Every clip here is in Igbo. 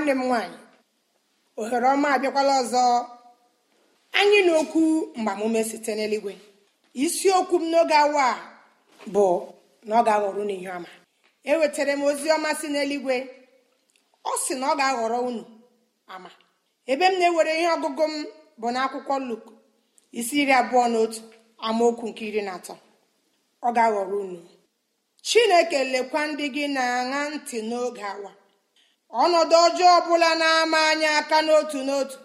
nwanne m nwaanyị ohere ọma abịakwala ọzọ anyị na okwu mgbamume site n'eluigwe isiokwu m n'oge awa a bụ na ọ ga-aghọrọ unu ihe ọma ewetara m ozi ọma si n'eluigwe ọ sị na ọ ga-aghọrọ unu ama ebe m na-ewere ihe ọgụgụ m bụ akwụkwọ luk isi iri abụọ na otu amaokwu nke iri na atọ ọ ga-aghọrọ unu chineke lekwa ndị gị na-aṅa ntị n'oge awa ọnọdụ ọjọọ ọbụla na-ama anyị aka n'otu n'otu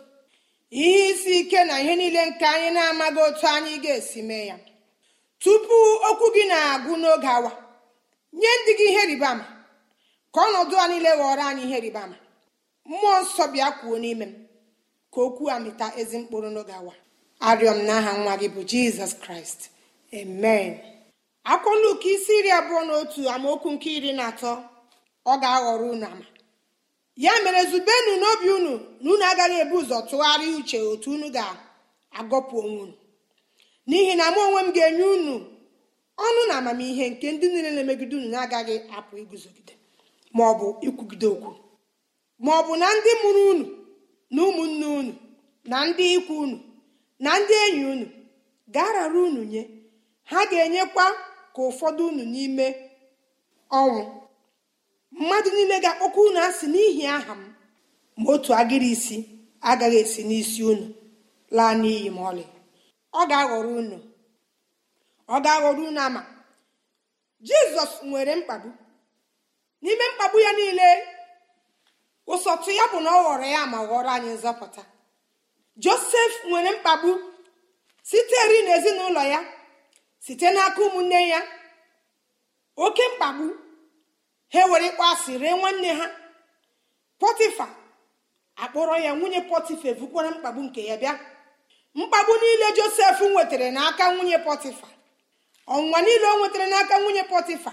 ihe isi ike na ihe niile nke anyị na-amaghị otu anyị ga-esi mee ya tupu okwu gị na-agụ n'oge awa nye ndị gị ihe rịbama ka ọnọdụ a niile ghọrọ anyị ihe ribama mmụọ nsọ bịa kwuo n'ime m ka okwu a mịta ezi mkpụrụ n'oge awa arịọ m n'aha nwa gị bụ jizọs kraịst amen akwụkwọ Luk isi iri abụọ na otu amaokwu nke iri na atọ ọ ga-aghọrọ unu ama ya mere zubenu n'obi unu na unu agaghị ebu ụzọ tụgharịa uche otu unu ga-agọpụ onwe unu n'ihi na mụ onwe m ga-enye unu ọnụ na amamihe nke ndị niile na-emegide unu na-agaghị apụ iguzogide maọbụ ikwugide okwu maọbụ na ndị mụrụ unu na ụmụnne unu na ndị ikwu unu na ndị enyi unu ga-arara unu nye ha ga-enyekwa ka ụfọdụ unu n'ime ọnwụ mmadụ niile ga-akpọkwa unu asị n'ihi aha m ma otu agịrị isi agaghị esi n'isi unu laa n'iyi ma ọlị ọ ga-aghọrọ unu ọ ga-aghọrọ unu ama jizọs nwere mkpagbu n'ime mkpagbu ya niile ụsọtụ ya bụ na ọ ghọrọ ya ma ghọrọ anyị nzọpụta josef nwere mkpagbu siteri n'ezinụlọ ya site n'aka ụmụnne ya oke mkpagbu ha were ịkpọ asị ree nwanne ha pọtịfa akpọrọ ya nwunye pọtịfa ebukwara mkpagbu nke ya bịa mkpagbu niile josef nwetara n'aka nwunye pọtịfa ọnwụnwa niile o nwetara n'aka nwunye pọtịfa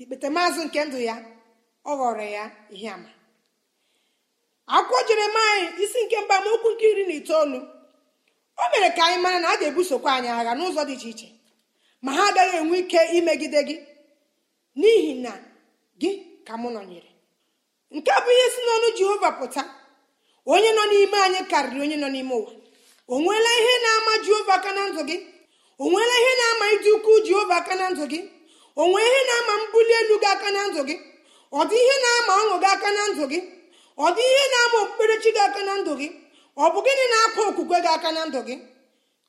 ikpeta maazị nke ndụ ya ọ ghọrọ ya ihe ama akwụkwọ jeremaya isi nke mba amaokwu nke iri na itoolu o mere ka anyị mara na a ga-ebusokwa anyị agha n'ụzọ dị iche iche ma ha agaghị enwe ike imegide gị n'ihi na gị ka mụ nọnyere nke a bụ ihe si n'ọnụ jehova pụta onye nọ n'ime anyị karịrị onye nọ n'ime ụwa o nweela ihe na-ama jehova aka na ndụ gị o nweela ihe na-ama ịdị ukwu jehova aka na ndụ gị o nwee ihe na-ama mbuli elu gị aka na ndụ gị ọ dị ihe na-ama ọṅụ gị aka na ndụ gị ọ dị ihe na-ama okpukperechi gị aka na ndụ gị ọ bụ gịnị na-akpa okwukwe gị aka na ndụ gị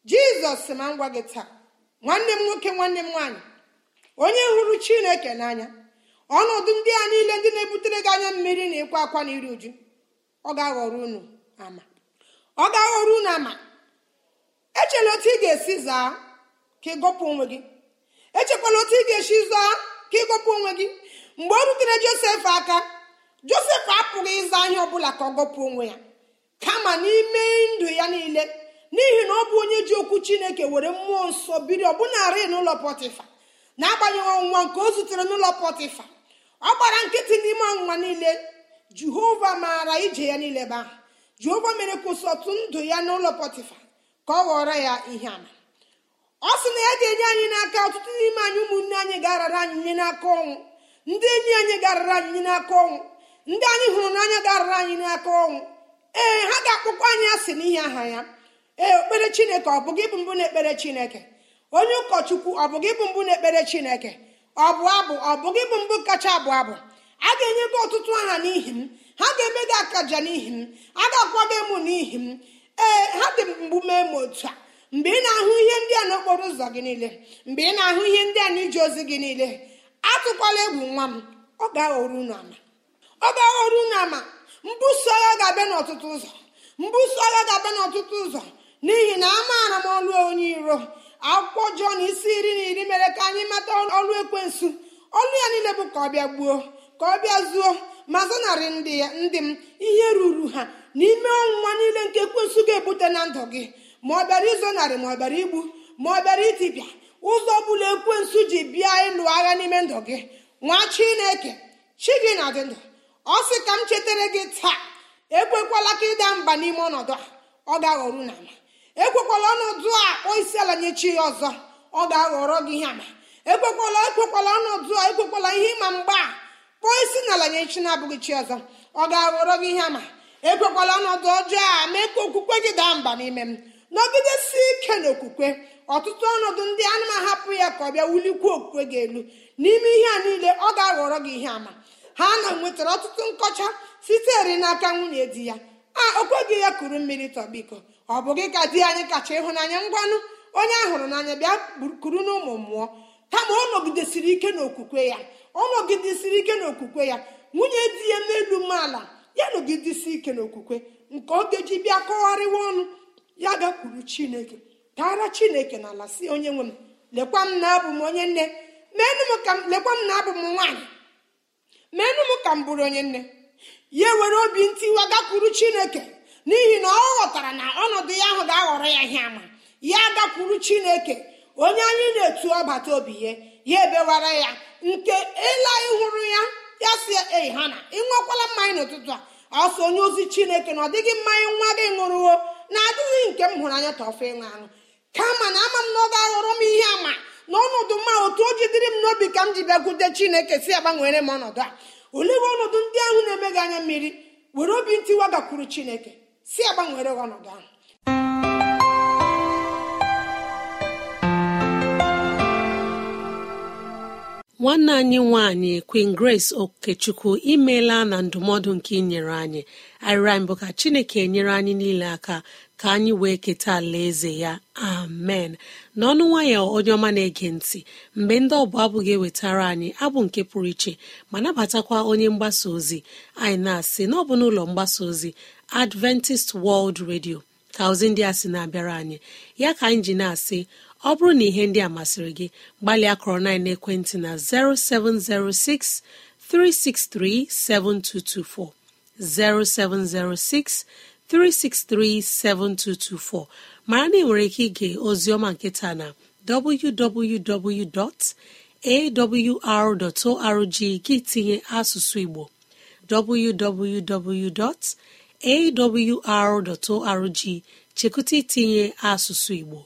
jizọs ma ngwa gị taa nwanne m nwoke nwanne m nwaanyị onye hụrụ chineke n'anya ọnọdụ ndị a niile ndị na-ebutere gị anya mmiri na ịkwa akwa na iri uju ọ ga-aghọrọ unu ama ọ ga-aghọrọ unu ama echela otu ị ga-esi zaa ka onwe gị echekwala otu ị ga-esi zaa ka onwe gị mgbe ọ rutere josef aka josef apụghị ịza ọ ọbụla ka ọ gọpụ onwe ya kama n'ime ndụ ya niile n'ihi na ọ bụ onye ji okwu chineke were mmụọ nsọ biri ọbụnarị n'ụlọ pọtịfa na-agbanyeghị ọnwụnwa nke o zutere n'ụlọ pọtịfa ọ gbara nkịtị n'ime ọnwụnwa niile jehova maara ije ya niile ba jehova mere kwụsịtụ ndụ ya n'ụlọ pọtịfa ka ọ ghọrọ ya ihe ama ọ sị na ya ga-enye anyị n'aka ọtụtụ n'ime anyị ụmụnne anyị garara anyị nye n'aka ọnwụ ndị enyi anyị garara anyị nye n'aka ọnwụ ndị anyị hụrụ n'anya garara anyị n'aka ọnwụ ee ha ga-akpọkwa anyị asị n'ihi aha ya ee okpere chineke ọ bụghị bụ mbụ na-ekpere chineke onye ụkọchukwu ọ bụghị bụ mbụ na-ekpere chineke ọ abụ ọ bụghị gị bụ mbụ kacha abụ abụ a ga-enye gị ọtụtụ aha n'ihi m ha ga-eme gị akaja n'ihi m a ga-akwa gị emu n'ihi m ee ha dị mgbu mee m otu a mgbe ị na-ahụ ihe ndị a n'okporo ụzọ gị niile mgbe ị na-ahụ ihe ndị a n'ije ozi gị niile atụkwala egwu nwa m ọ ga unu ama ọ ga unu ama mbuso agha ga-abịa n'ọtụtụ ụzọ mbuso agha ga-abịa n'ọtụtụ ụzọ n'ihi na amaara m ọlụ onye iro akwụkwọ jọn isi iri na iri mere ka anyị mata ọrụ ekwensu ọnụ ya niile bụ ka ọ bịa gbuo ka ọ bịa zuo ma zanarị ndị m ihe ruru ha n'ime ọnwụnwa niile nke ekwensu ga-ebute na ndụ gị ma ọ bịara izonarị ma ọ bịara igbu ma ọ bịara itipịa ụzọ ọbụla ekwensu ji bịa ịlụ agha n'ime ndụ gị nwa chineke chi gị na dị ndụ ọ sị ka m chetara gị taa ekwekwala ka ịda mba n'ime ọnọdụ a ọ ga-aghọru na ama ekwekwala ọnọdụ a kpọọ isi ala nye chi ọzọ ọ ga-aghọrọ gị ihe ama ekwekwala ekwekwala ọnọdụ a ekwekwala ihe ịma mgba a kpọọ isi n'ala nye chi na-abụghị chi ọzọ ọ ga-aghọrọ gị ihe ama ekwekwala ọnọdụ ọjọọ a mee ka okwukwe gị daa mba n'ime m si ike n'okwukwe ọtụtụ ọnọdụ ndị a na-ahapụ ya ka ọ bịa wulikwuo okwukwe gị elu n'ime ihe a niile ọ ga-aghọrọ gị ihe ama ha na nwetara ọtụtụ nkọcha sitere n'aka nwunye di ya a okwe gị ya kuru mmiri tọbiko ọ bụ gị ka di anyị kacha ịhụnanya ngwanụ onye a hụrụ n'anya bịa kuru n'ụmụ mmụọ kama ọ nọgidesiri ike n'okwukwe ya ọ nọgidesiri ike n'okwukwe ya nwunye di ya n'elu umeala ya nọgidesi ike n'okwukwe nke oge ji bịa kọgharịwa ọnụ ya gakwuru chineke taara chineke na ala si onye nwe m lekwa m na abụ m onye nne lekwa m na abụ m nwaanyị meenụ m ka m bụrụ onye nne ya were obi ntiwa gakwuru chineke n'ihi na ọ ghọtara na ọnọdụ ya ahụ ga-aghọrọ ya ihe ama ya gakwuru chineke onye anyị na-etu ọbata obi ya ya ebewara ya nke ịla ịhụrụ ya ya si ei ha na ịnwekwala mmanya n'ụtụtụ a ọsọ onye ozi chineke na ọ dịghị mmanya nwa gị ṅụrụwo na-adịghị nke m hụrụ anya tọfe ịṅụ aṅụ kama na ama m na ọ ga-aghọrọ m ihe ama na ọnọdụ mma otu o jidere m n'obi ka m ji bịakwute chineke si agbanwere m ọnọdụ a olee ọnọdụ ndị ahụ na-emeghị anya mmiri were obi ntiwa gakwuru chineke si agbanwere ọnọdụ ahụ nwanne anyị nwanyị Queen Grace okechukwu imela na ndụmọdụ nke inyere anyị arịrịa mbụ ka chineke nyere anyị niile aka ka anyị wee keta alaeze ya amen n'ọnụ nwayọ onye ọma na-ege ntị mgbe ndị ọbụ abụ ga-ewetara anyị abụ nke pụrụ iche ma nabatakwa onye mgbasa ozi anyị na-asị n'ọbụ n'ụlọ mgbasa ozi adventist world radio ka ozi ndị a sị na-abịara anyị ya ka anyị ji na-asị ọ bụrụ na ihe ndị a masịrị gị gbalịa kọrọ na ekwentị na 0706 363 7224 0706 363 7224 mara na ị nwere ike ige ọma nketa na www.awr.org gị tinye asụsụ igbo www. awr.org chekụta itinye asụsụ Igbo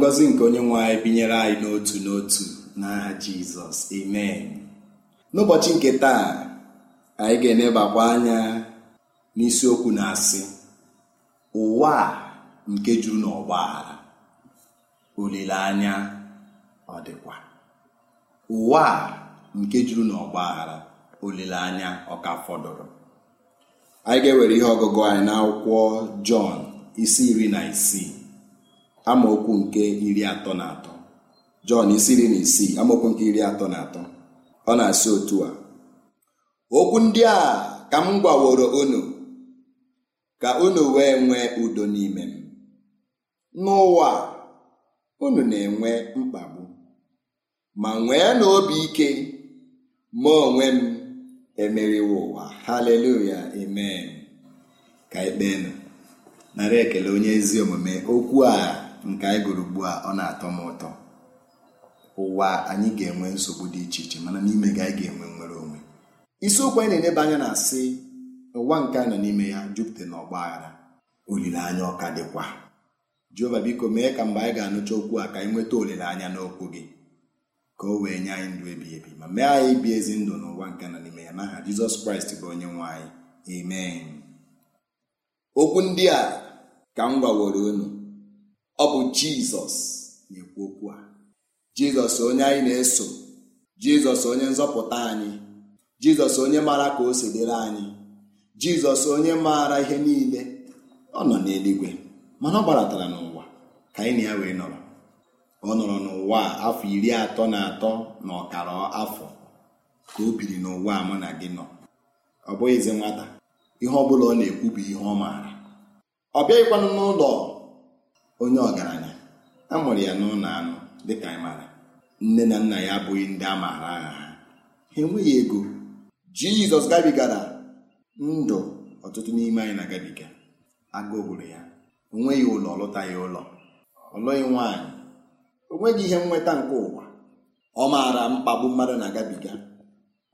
ngọzi nke onye nwe anyị binyere anyị n'otu n'otu n'aha jizọs amen n'ụbọchị nke taa anyị ga-enebakwa anya n'isiokwu na-asị ụwa nke juru n'ọgba aghara olileanya ọ dịkwa ụwa nke juru n'ọgba aghara olileanya ọ ka fọdụrụ anyị ga-ewere ihe ọgụgụ anyị n'akwụkwọ jọn isi iri na isii amaokwu nke iri atọ na atọ jọn isiri na isii amaokwu nke iri atọ na atọ ọ na-asị otu a okwu ndị a ka m gwaworo unu ka unu wee nwee udo n'ime m n'ụwa unu na-enwe mkpagbu ma nwee n'obi ike ma onwe m emeriwo ụwa haleluya amen ka ekpee nara ekele onye ezi omume okwu a nke anyị gụrụ ugbu a ọ na-atọ m ụtọ ụwa anyị ga-enwe nsogbu dị iche iche mana n'ime gị anyị ga-enwe nwere onwe isiokwu anyị na-eleba anya na-asị ụwa nke a nọ n'ime ya jupụta na ọgba aghara olileanya ọka dịkwa jehova biko mee ka mgbe anyị ga-anụcha okwu a ka anyị nweta olileanya n'okwu gị ka o wee nye anyị ndụ ebighị ebi ma mee anyị ibi ezi ndụ n'ụwa nke nọ n'ime ya n'aha jizọs kraịst bụ onye nwe anyị amen okwu ndị a ka m gwaworo unu ọ bụ jizọs na-ekwu okwu a jizọs onye anyị na-eso jizọs onye nzọpụta anyị jizọs onye maara ka o si anyị jizọs onye maara ihe niile ọ nọ n'eluigwe mana ọ gbaratara n'ụwa ka anyị na ya wee nọrọ ọ nọrọ n'ụwa afọ iri atọ na atọ na ọkara afọ ka o biri n'ụwa mụ na gị nọ ọ bụghịzi nwata ihe ọ bụla ọ na-ekwu bụ ihe ọ maara ọ bịaghịkwanụ n'ụlọ onye ọgaranya a mụrụ ya n'ụlọ anụ dịka anyị nne na nna ya abụghị ndị a maara ha ha enweghị ego jizọs gabigara ndụ ọtụtụ n'ime anyị na-agabiga agụụ gburu ya o nweghị ụlọ ọlụta ya ụlọ ọlụghị nwaanyị nwaanyị nweghị ihe nnweta nke ụwa ọ maara mkpagbu mmadụ na-agabiga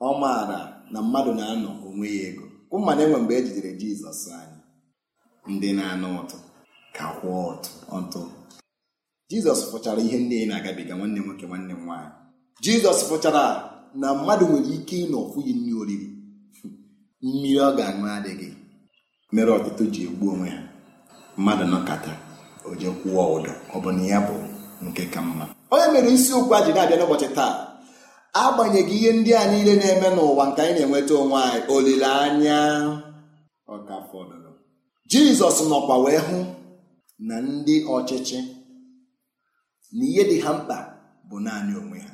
ọ maara na mmadụ na-anọ onwe ya ego kụ mmadụ enwe mgbe e jidere jizọs anyị ndị na-anụ ụtụ ka ọtụ jizọs fụchara ihe ndị na-agabiga nwanne nwoke nwanne m nwaanyị jizọs fụchara na mmadụ nwere ike ịnọ ọfụghị nri oriri mmiri ọ ga-aṅụ adịghị mere ọtụtụ ji egbu onwe ha mmadụ nọkata oje kwụọ ụdọ ọ bụ na ya bụ nke ka mma onye mere isiokwu a ji na-abịa n'ụbọchị taa agbanyeghị ihe ndị a niile na-eme n'ụwa nke anyị na-enweta onwe anyị olileanya ọka fọdụrụ jizọs nọkwa wee hụ na ndị ọchịchị na ihe dị ha mkpa bụ naanị onwe ha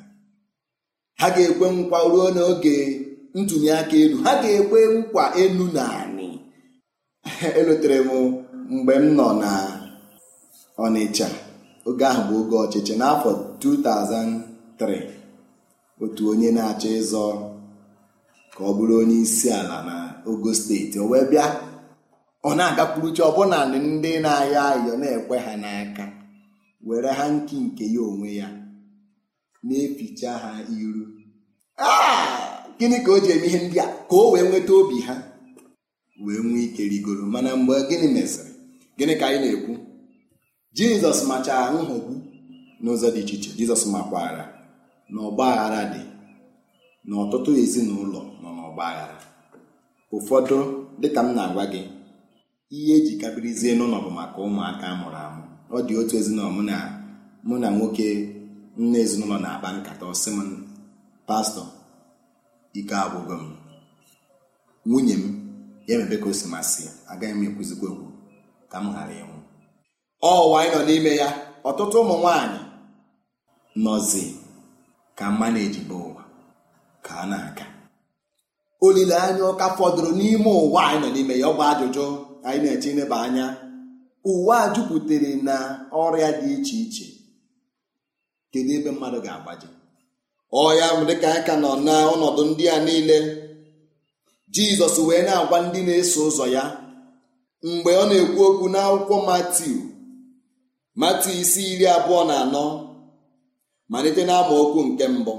ha ga-ekwe nkwa ruo n'oge ntụnye aka elu ha ga-ekwe nkwa elu na elotere elutere m mgbe m nọ na Ọnịcha oge ahụ bụ oge ọchịchị n'afọ 2003 otu onye na-achọ ịzọ ka ọ bụrụ onye isi ala na Ogo steeti o wee bịa ọ na chi ọbụna ndị na-ayọ ayọ na-ekwe ha n'aka were ha nki nke ya onwe ya na-eficha ha iru gịnị ka o ji eme ihe ndị a ka o wee nweta obi ha wee nwee ike rigoro mana mgbe gịnị mesịrị gịnị ka anyị na-ekwu jizọs machara nhọgbu n'ụzọ dị iche iche jizọs makwara na ọgba aghara dị na ọtụtụ ezinụlọ nọ n'ọgba aghara ụfọdụ dịka m na-agwa gị ihe eji kabirizie n'ụlọ bụ maka ụmụaka mụrụ amụ ọ dị otu ezinụlọ mụ na mụ na nwoke nne ezinụlọ na-akpa nkata ọsị m pastọ ike agwụgo m nwunye m ya mebe ka o si masị agaghị m ekwuzikwa okwu ka m ghara ịnwụ ọwa anyị nọ n'ime ya ọtụtụ ụmụ nwanyị nọzi ka mma na-ejibe ụwa ka a na-aka olileanya ọka fọdụrụ n'ime ụwa anyị nọ n'ime ya ọ bụ ajụjụ anyị na-eche ineba anya ụwa a jupụtara na ọrịa dị iche iche kedu ebe mmadụ ga-agbaji ọya dịka anyị ka nọ na ọnọdụ ndị a niile jizọs wee na-agwa ndị na-eso ụzọ ya mgbe ọ na-ekwu okwu n'akwụkwọ matiu matiu isi iri abụọ na anọ malite okwu nke mbụ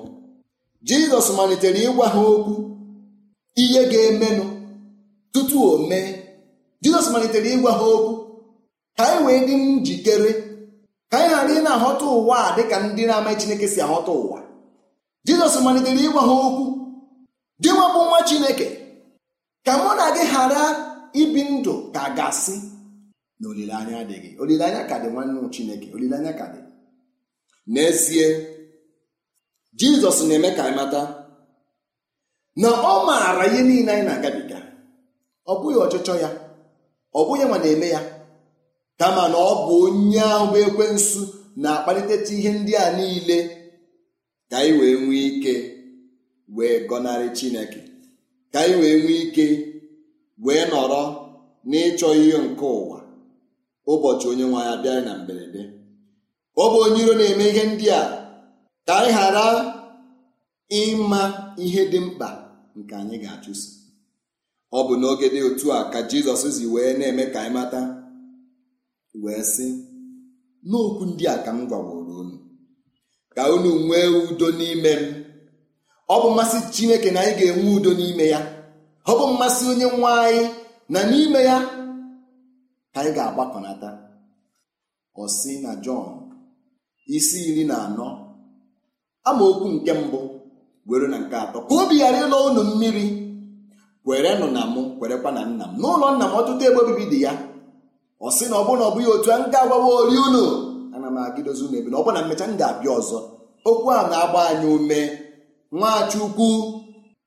jizọs malitere ịgwa ha okwu ihe ga-emenụ tutu o mee jizọs malitere ịgwa ha okwu ka anyị wee dị njikere ka anyị ghara ị na-ahọta ụwa a dịka ndị na-amaghị chineke si ahọta ụwa jizọs malitere ịgwa ha okwu dị nwabụ nwa chineke ka mụ na gị ghara ibi ndụ ka gasị ga-asị na olileanya adịghị olileanya ka dị nwanne chineke olileanya ka dị n'ezie jizọs na-eme ka anyị mata na ọ maara ihe niile anyị na-agabiga ọ bụghị ọchịchọ ya ọ bụghị ma na-eme ya kama na ọ bụ onye ahụ bụ nsu na-akpaliteta ihe ndị a niile ka anyị wee nwee ike wee gọnarị chineke ka anyị wee nwee ike wee nọrọ n'ịchọ ihe nke ụwa ụbọchị onye nwe ya na mberede ọ bụ onye iro na-eme ihe ndị a ka anyị ghara ịma ihe dị mkpa nke anyị ga-achụso ọ bụ n'oge dị otu a ka jizọs zi wee na-eme ka anyị mata wee sị n'okwu ndị a ka m gwaworo unu ka unu nwee udo n'ime m ọ bụ mmasị chineke na anyị ga-enwe udo n'ime ya ọ bụ mmasị onye nwe anyị na n'ime ya ka anyị ga-agbakọnata ọ na jọn isi iri na anọ amaokwu nke mbụ were na nke atọ ka obi ghara ịlọ unu mmiri kwerenụ na mụ kwerekwa na nna m n'ụlọ nna m ọtụtụ ebe obibi dị ya ọ sị na ọ bụ na ọ bụghị otu a nke agwawa ori unu ana m agịdozi unu ebe na ọ bụ na mmecha m ga-abịa ọzọ okwu a na-agba anyị ume nwachukwu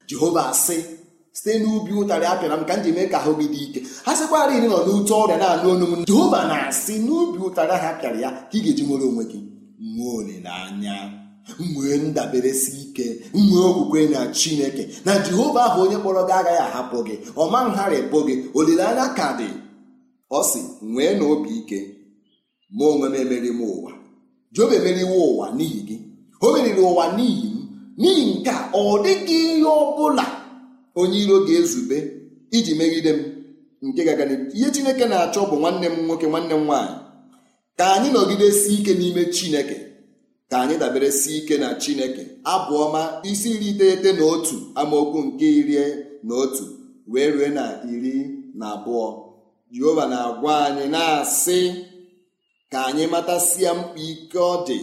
jehova asị site n'ubi ụtarị apịara m ka m ji mee ka ahụ gị dị ike ha sịkwara iri nọ n'ute ọrịa na-anụ onu m jehova na-asị n'ubi ụtarị ahụ apịara ya ka ị ga-eji nwere onwe gị nwee olileanya nwee si ike nwee okwukwe na chineke na jehova ahụ onye kpọrọ gị agaghị ahapụ gị ọma ngharịpụ gị olileanya ka dị ọ sị nwee na obi ike ma onwe m emeri m ụwa job emeriwe ụwa n'ihi gị o meriri ụwa n'ihi m n'ihi nke a ọ dịghị ihe ọ bụla onye iro ga-ezube iji megide m nke ihe chineke na-achọ bụ nwanne m nwoke nwanne m nwaanyị ka anyị nọgidesi ike n'ime chineke ka anyị dabere si ike na chineke abụ ọma isi iri iteghete na otu amaokwu nke iri na otu wee rue na iri na abụọ jehova na-agwa anyị na-asị ka anyị matasịa mkpa ike ọ dị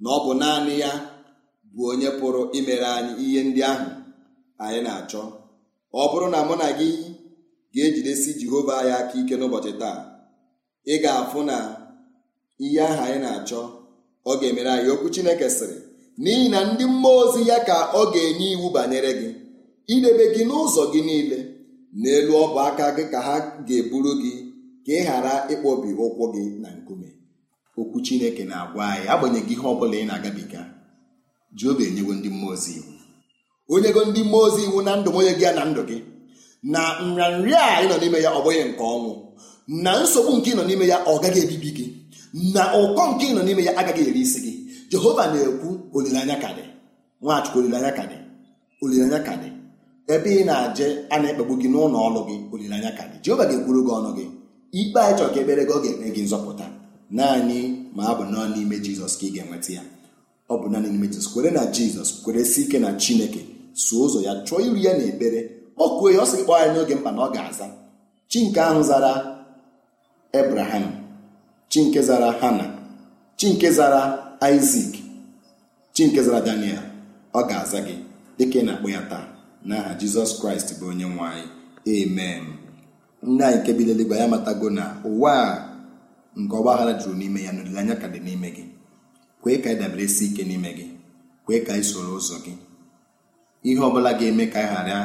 na ọ bụ naanị ya bụ onye pụrụ imere anyị ihe ndị ahụ anyị na-achọ ọ bụrụ na mụ na gị ga-ejidesi jehova ya aka ike n'ụbọchị taa ị ga-afụ na ihe ahụ anyị na-achọ ọ ga-emere anyị okwu Chineke sịrị n'ihi na ndị mmụọ ozi ya ka ọ ga-enye iwu banyere gị idebe gị n'ụzọ gị niile n'elu ọbụ aka gị ka ha ga-eburu gị ka ị ghara ịkpọbi ụkwụ gị na nkume okwu Chineke na-agwa anyị agbanyeghị ihe ọ bụla ị na-agabiga ji obi enyewo ndị mmụọ ozi iwu onyego ndị mmụọ ozi iwu na ndụ onye gị ya na ndụ gị na nrịanrịa a ị nọ n'ime ya ọ bụghị nke ọnwụ na nsogbu nke ị nọ n'ime ya ọ gaghị ebibi gị na ụkọ nke ị nọ n'ime ya agaghị eri isi gị jehova na-ekwu olileanya ka dị nwachukwu olileanya ka dị olileanya ka dị ebe ị na-aje a na-ekpegbu gị n'ụlọ ọrụ gị olileanya ka dị jehova ga-ekwuru gị ọnụ gị ikpe anyị chọrọ ka ekpere gị ọ ga eme gị nzọpụta naanị ma ọ bụ n'ime jizọs ka ị ga-enweta ya ọ bụ naanị n'ime jizọs kwere na jizọs kwere si ike na chineke so ụzọ ya chọọ iru ya na ekpere kpọkuo ya ọ sị kpọọ ya n'oge mkpa na ọ ga-aza chi nke ahụ zara ebraham chi nke zara hana chi nke zara isak chi nke zara daniel ọ ga-aza gị dịka ị na-akpọ ya taa n'aha jizọs kraịst bụ onye nwanyị amen nne anyị nke bi n'eluigwe ya matago na ụwa a nke ọgba aghara juru n'ime ya na olileanya ka dị n'ime gị kwee ka dabere si ike n'ime gị kwee ka anyị soro ụzọ gị ihe ọbụla ga-eme ka anyị ghara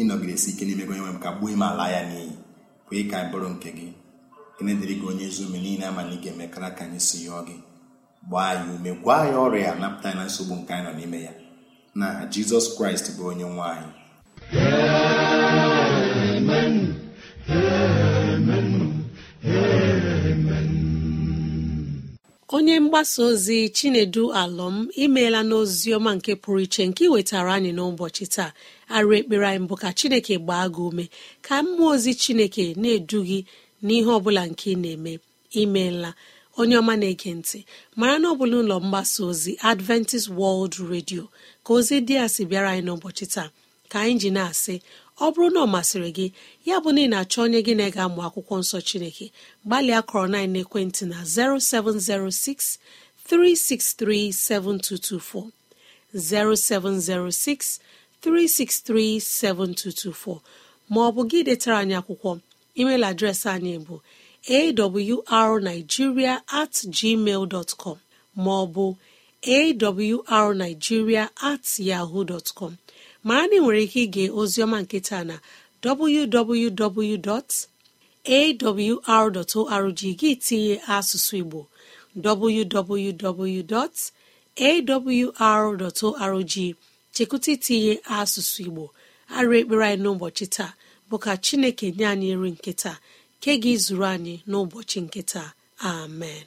ịnọgidesi ike n'ime gị onye nwe m ka gbuo ime ala ya n'iyi kwee ka anyị bụrụ nke gị ekene dịrị gị onye ezi ome niile ama ị ga-emekara ka anyị si yọọ gị gbaa anyị ume gwa ya ọrịa napụta na nsogbu nke anyị nọ n'ime ya na jizọs kraịst bụ onye nwanyị. anyị onye mgbasa ozi chinedu alọm imeela n'ozi ọma nke pụrụ iche nke wetara anyị n'ụbọchị taa arụ ekpere anyị bụ ka chineke gbaa gị ume ka mmụọ ozi chineke na-edu gị n'ihe ọbụla nke ị na-eme imeela onye ọma na-ege ntị mara na ọ bụla ụlọ mgbasa ozi adventist world radio ka ozi dị a sị bịara anyị n'ụbọchị taa ka anyị ji na-asị ọ bụrụ na ọ masịrị gị ya bụ na ị na-achọ onye gị na ega ga-amụ akwụkwọ nsọ chineke gbalịa kọrọ na ekwentị na 0706 363 7224 0706 363 7224 ma ọ bụ gị detara anyị akwụkwọ email adreesị anyị bụ arigiria at gmail maọbụ arigiria at yaho dọtcom mara na ị nwere ike ige ozioma nketa na www.awr.org gị tinye asụsụ igbo www.awr.org chekwụta itinye asụsụ igbo arụ ekpere anyị n'ụbọchị taa bụ ka chineke nye anyị nri nkịta ke gị zuru anyị n'ụbọchị nkịta amen